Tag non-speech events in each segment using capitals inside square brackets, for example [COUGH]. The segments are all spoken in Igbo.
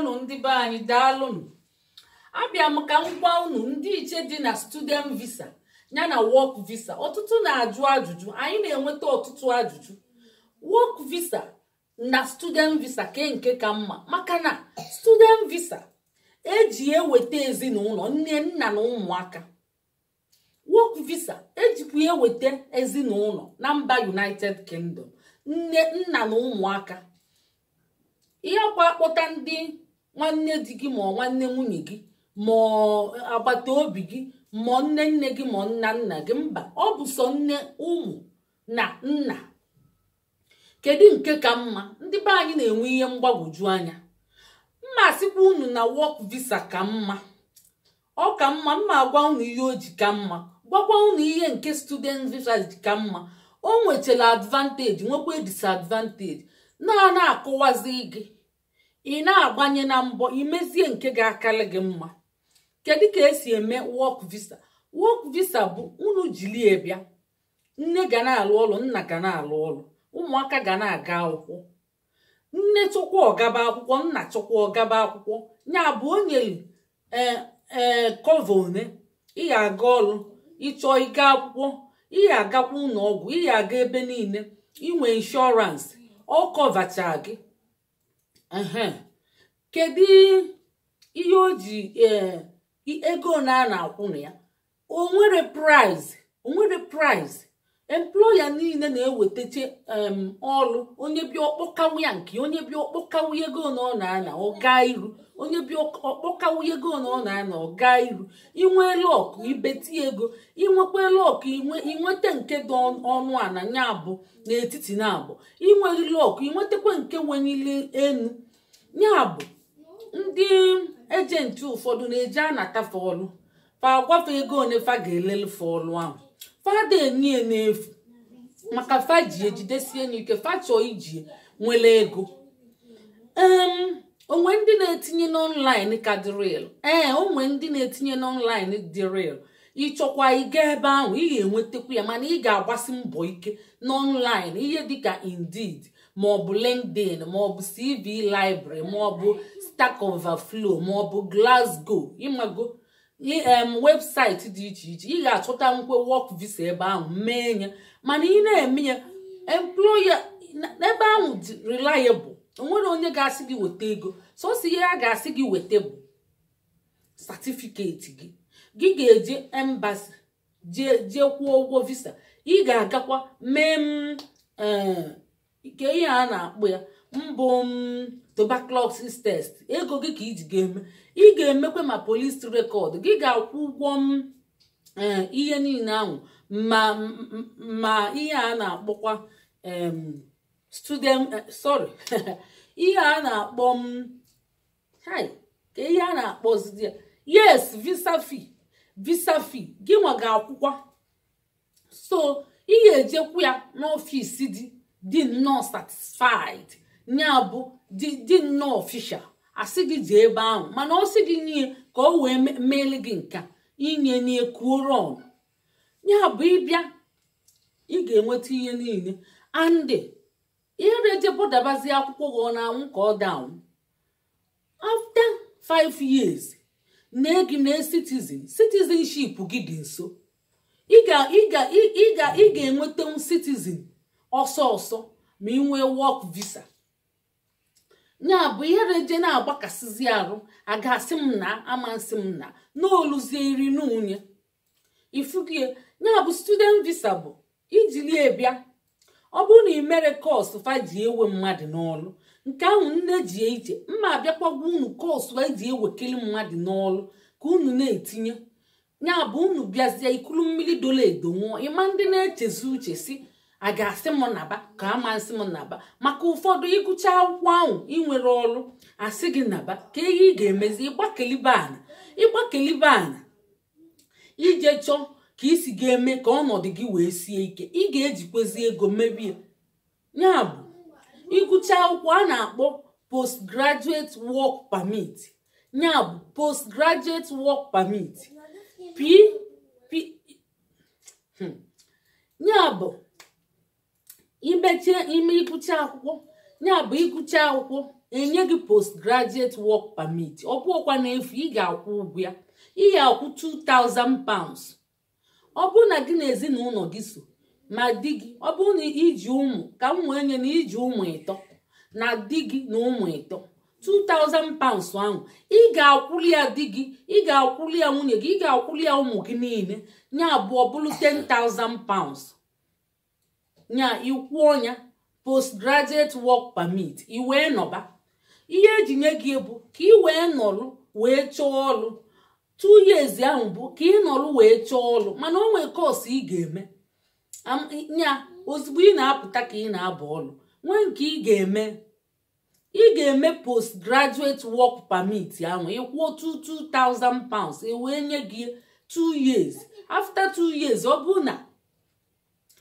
unu ndị be anyị daalụnụ abịa m ka m gwa unu ndị iche dị na student visa ya na work visa ọtụtụ na-ajụ ajụjụ anyị na-enweta ọtụtụ ajụjụ work visa na student visa ke nke ka mma maka na student visa eji eweta ezinụlọ nne nna na ụmụaka work visa ejikwa eweta ezinụlọ na mba united kingdom nne nna na ụmụaka ihe kwa akpọta nwanne di gị ma nwanne nwunye gị ma agbata obi gị ma nne nne gị ma nna nna gị mba ọ bụ sọ nne ụmụ na nna kedu nke ka mma ndị be anyị na-enwe ihe mgbagwoju anya mma sikwa unu na wọk visa ka mma ọ ka mma mma agwa unu ihe o ji ka mma gwakwa unu ihe nke student visa ji ka mma o nwechara advantage nwekwa disadvantage na na-akụwazi gị ị na-agbanye na mbọ imezie nke ga-akarị gị mma kedu ka esi eme wọk visa wọk visa bụ unu jilie bịa nne ga na-alụ ọlụ nna ga na-alụ ọlụ ụmụaka ga na-aga akwụkwọ nne chọkwa ọgaba akwụkwọ nna chọkwa ọgaba akwụkwọ ya bụ onyeli ee kọva one ị ga-aga ọrụ ịchọọ ịga akwụkwọ ị ga-agakwa ụlọ ọgwụ ị ga-aga ebe niile inwe inshọransị ọ kọvacha gị kedu ihe oji ji e, ego na a na-akwụ ya onwere prize onwere prize employa niile na-ewetacha ọrụ onye bịa ya nke onye bịa ọkpọkanwụ ego na ọ na ọga iru onye bi ọkpọkawu ego na ọ na-anọ gaa iru inwe lọkụ ibeti ego inwekwa lọkụ inweta nke dị ọnụ ana nya abụ n'etiti na abụ inweghị lọkụ inwetakwa nke wenile enu ya bụ ndị ejenti ụfọdụ na-eji anata fọlụ fa agwafe ego one fa ga-elele fọlụ ahụ fada enye n'efu maka fa ji ejidesie ike fa chọọ iji nwere ego onwe ndị na-etinye n'ọnlaịn ka dị ee onwe ndị na-etinye n'ọnlaịn dị ịchọkwa ịga ebe ahụ ị ga-enwetakwu ya mana ị ga-agbasi mbọ ike n'ọnlaịn ihe dịka Indeed maọbụ LinkedIn maọbụ CV Library maọbụ Stack maọbụ Glasgow ịmago em webụsaịtị dị iche iche ị ga-achọta nkwe work visa ebe ahụ mee ya mana ị na-eme ya employer ebe ahụ dị reliable onwere onye ga-asị gị weta ego si ihe a ga-asị gị weta bụ satifiketi gị gị ga-eje embasi jee kwụọ ụgwọ visa ị ga-agakwa mee eh, nke ihe a na akpụ ya mbụ tuberculosis test ego gị ka iji ga-eme ị ga-emekwa ma polis rekọd gị ga-akwụ ụgwọ eh, ihe niile ahụ ma ihe a na-akpọkwa student eh, sorry [LAUGHS] ihe a na-akpọ m ihe a na akpọ yes visa fee visa fee gị ga so ị ga-ejekwu ya n'ọfịs dị dị nnọọ satisfied ya bụ dị nnọọ ofishal asị gị jee ebe ahụ mana ọ sị gị nye ka o wee meele gị nka inye n'ekuoron ya bụ ịbịa ị ga-enweta ihe niile andị ihe na-ejebọdabazi akwụkwọ gị ọ na-anwụ ka ọ danwụ five years na gị na citizenship gị dị nso ị ga m citizen ọsọ ọsọ ma ị nwee work visa ya bụ ihe reje na-agbakasịzi arụ agasị m na amasị m na n'oluzie iri n'unye ifugie ya bụ student visa bụ ijili e bịa ọ bụrụ na ị mere kọsụ faji ewe mmadụ n'ọlụ nke ahụ nne ji ije mma abịakwagwa unu kọsụ eji ji mmadụ n'ọlụ ka unu na-etinye ya bụ unu bịazie ikulu mmiri dola edo nwụọ ịma ndị na-echezi uche si a ga-asị m naba ka a ma nsị m naba maka ụfọdụ ịgụcha akwụkwọ ahụ inwere ọrụ asị gị naba ka ihe ị ga-emezi ịgbakelibe ana ịgbakelibe ana ije chọọ ka isi ga-eme ka ọnọdụ gị wee sie ike ị ga-ejikwezi ego merie ya bụ ịgụcha akwụkwọ a na-akpọ postgraduate work permit ya bụ postgraduate work permit pp hmm. ya bụ imechie ime ịgụcha akwụkwọ ya bụ ịgụcha akwụkwọ enye gị postgraduate work permit ọ bụọkwa n'efu ị ga-akwụ ụgwọ ya ị ga-akwụ 2000 pounds ọ bụrụ na gị na ezinụlọ gị so ma di gị ọ bụrụ na iji ụmụ ka m wee nye na iji ụmụ ịtọ na di gị na ụmụ ịtọ 2000 pounds ahụ ị ga-akwụli ya di gị ị ga-akwụli ya nwunye gị ị ga-akwụli ya ụmụ gị niile nya abụọ bụrụ 10,000 pounds nya ikwuo ya postgraduate work permit ị wee nọba ihe eji nye gị bụ ka ị wee nọrụ wee chọọ ọrụ two years ahụ bụ ka ị nọrụ wee chọọ ọrụ mana o nwee kọọsụ ị ga-eme ya ozugbo ị na-apụta ka ị na-abụ ọrụ nwee nke ị ga-eme ị ga-eme graduate work permit ahụ ịkwụọ 2000 pounds e wee nye gị 2 years after 2 years ọ bụ na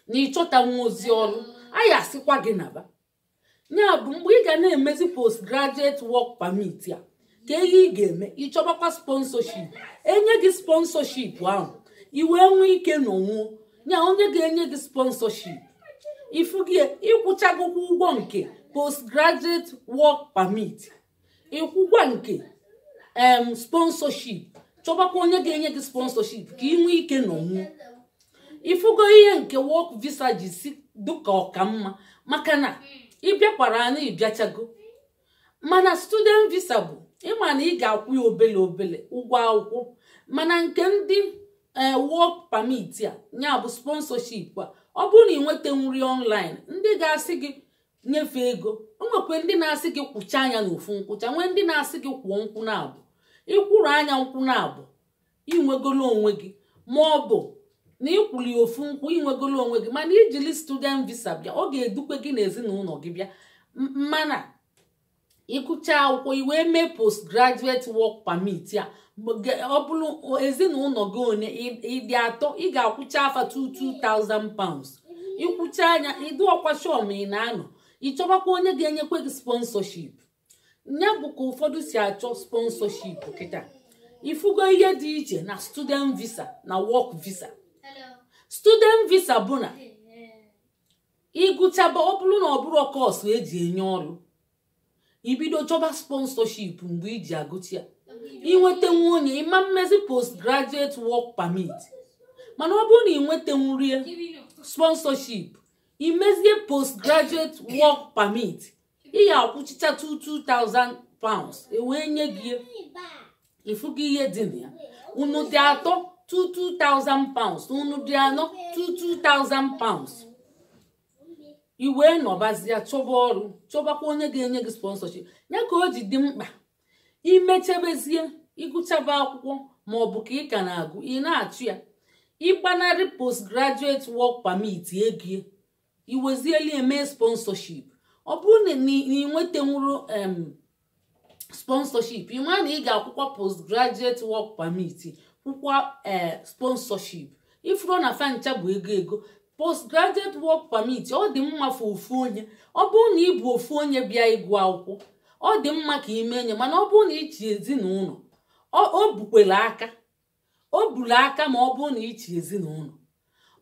na ịchọta nwa ozi ọrụ anyị asịkwa gị naba ya bụ mgbe ị ga na-emezi graduate work permit a ka ihe ị ga-eme ịchọbakwa sponsorship enye gị sponsorship ahụ ị wee nwee ike n'onwu nya onye ga-enye gị sponsorship ifugie ịkwụchagokwa ụgwọ nke postgraduate work permit ịkwụgwa nke em sponsorship chọbakwa onye ga-enye gị sponsorship ka ị nwee ike n'onwuo ifugo ihe nke work visa ji si dịka mma maka na ịbịakwara anyị bịachago mana student visa bụ ịma na ị ga-akwụ ya obele obele ụgwọ akwụkwọ mana nke ndị e, work permit a ya bụ sponsorship a ọ bụrụ na ị nweta nri online ndị ga-asị gị nyefee ego o nwekwe ndị na-asị gị kwụcha anya n'ofu nkwụcha nwee ndị na-asị gị kwụọ nkwụ na-abụ ịkwụrụ anya nkwụ na-abụ inwegolo onwe gị ma ọ bụ na ịkwụli ofu nkwụ inwegolo onwe gị mana ijili student visa bịa ọ ga-edukwe gị na gị bịa mana ịkụcha akwụkwọ iwee mee postgraduate work pamit ya ọ bụrụ ezinụlọ gị one ịdị atọ ị ga-akwụcha afa 2,000 pounds ịkwụcha anya ịdị ọkwa shọm ị na-anọ ịchọbakwa onye ga-enyekwa gị sponsorship ya bụ ka ụfọdụ si achọ sponsorship kịta ifugo ihe dị iche na student visa na work visa student visa bụ na ịgụchaba ọ bụrụ na ọ bụrụ kọọsụ eji enye ọrụ ibido chọba sponsorship mgbe iji agụcha inwetenwu onye ịma mmezi postgraduate work permit mana ọ bụrụ na ị nwetenwurie sponsorship imezie postgraduate work permit ị ga-akwụchicha 2000 pounds ewee nye gị ịfụgo ihe dị na ya unu dị atọ 2000 pounds unu dị anọ 2000 pounds iwe nọbazie chọba ọrụ chọbakwa onye ga-enye gị sponsorship ya ka o ji dị mkpa imechabezie ịgụchaba akwụkwọ ma ọ bụ ka ị ka na-agụ ị na-achụ ya post graduate work permit egie iwezieli eme sponsorship ọ bụrụ na ị nwetanwuru sponsorship ị ma na ị ga-akwụkwọ graduate work permit kwụkwa eh, sponsorship ifuru na fancha bụ ego ego postgraduate work permit ọ dị mma fa ofu onye ọ bụrụ na ị bụ ofu onye bịa ịgụ akwụkwọ ọ dị mma ka mee enye mana ọ bụrụ na ịchi ezinụlọ o bukwere aka o buru aka ma ọ bụrụ na ichi ezinụlọ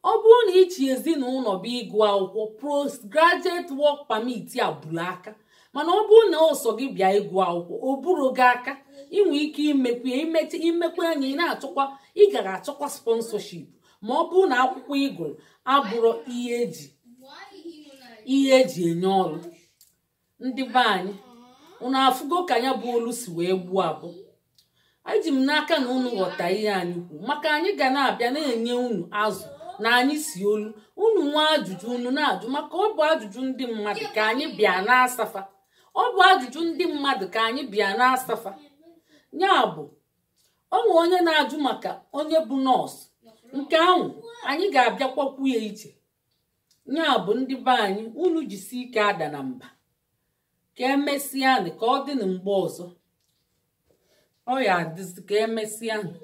ọ bụrụ na ichi ezinụlọ bụ ịgụ akwụkwọ postgraduate work permit a buru aka mana ọ bụrụ na ọsọ gị bịa ịgụ akwụkwọ o buru gị aka inwe ike imekwe imekwe anya ị na-achọkwa ị gara achọkwa sponsorship ma ọ bụrụ na akwụkwọ igwe gụrụ abụrụ ihe eji ihe eji enye ọrụ ndị be anyị unu afụgo ka ya bụ olu si wee gbuo abụ eji m n'aka na unu ghọta ihe anyị kwuo maka anyị ga na-abịa na-enye unu azụ na anyị si olu unu nwa ajụjụ unu na-ajụ maka ọ bụ ajụjụ ndị mmadụ ka anyị bịa na-asafa ọ bụ ajụjụ ndị mmadụ ka anyị bịa na-asafa nya bụ onwe onye na-ajụ maka onye bụ nọọsụ nke ahụ anyị ga-abịakwakwu ya iche ya bụ ndị be anyị unu jisi ike ada na mba ka e anyị ka ọ dị na mgbe ọzọ ọ ya adịzi ka e anyị.